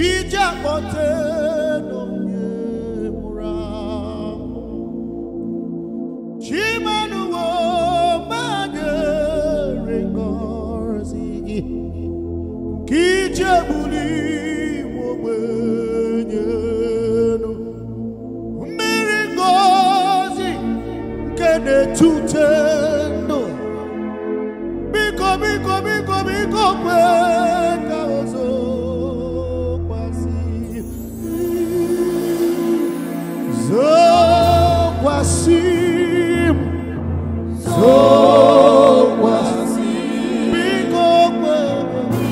Ije akpọte na-etute ndụ biko biko biko biko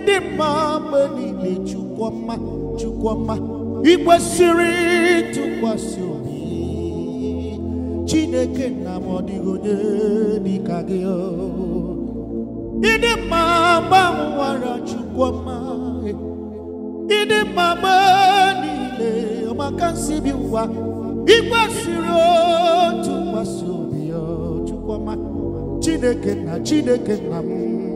le mma chukwama niile chukwuma chukwuma ikwesịrị ịtụkwasị obi chineke na m ọ dịghị onye dịka gị ịdị mma gbanwara chukwuma ịdị eh. mma mgbe niile ọmaka nsibi ụwa ikwesịrị otụkwasị obi oh, ya chineke na chineke na mm.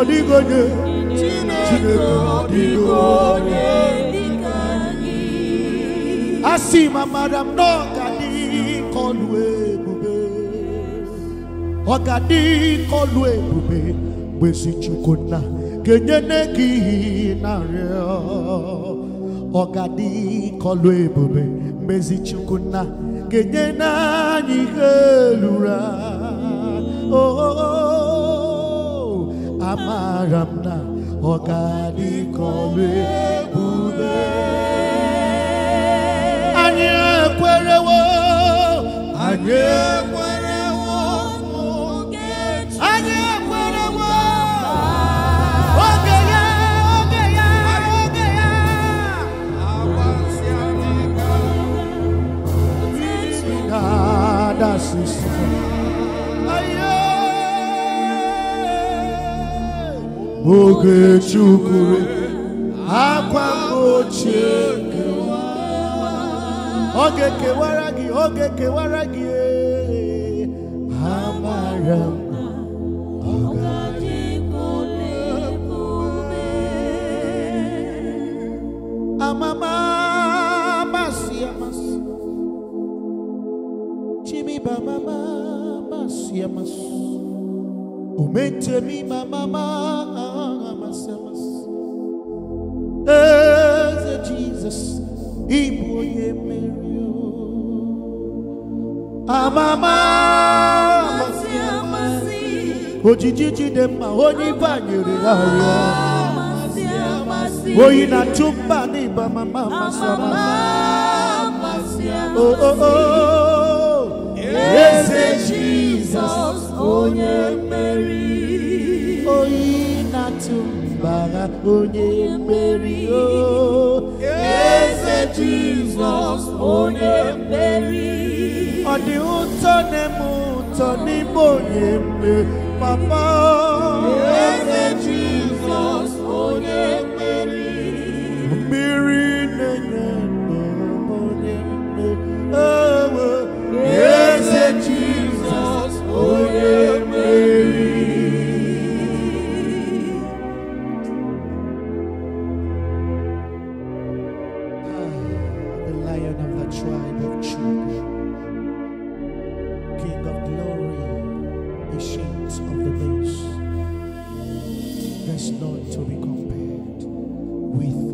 ọdịgonye Chineke ọdịgonye asị m amara m na ọ ga-adị kọlụ ebube ọ ga-adị kọlụ ebube gbezi Chukwu nna ga-enyere gị narịọ ọ ga-adị kọlụ ebube gbezi Chukwu nna ga-enye anyị ihe lụrụ oh, oh, oh. oh. amaramna ọgadikọlu ebube anyị ekwerewo anyị ekwerewo anyị ogechukwure akwa ochie oge kewara gị oge kewara gị amara m amama masị amasị chimiba mama masị amasị mi mama sinners. Eze Jesus, Ibu ye Mario. Amama, Ojijiji demma, Oni banyere ayo. Oyi na chumba ni ba mama masama. Oh oh oh. Eze Jesus, Onye Mary. Oyi na chumba gbara onye mmeri o eze jizọs onye mmeri ọ dị ụtọ na-eme ụtọ n'ime onye papa eze is not to be compared with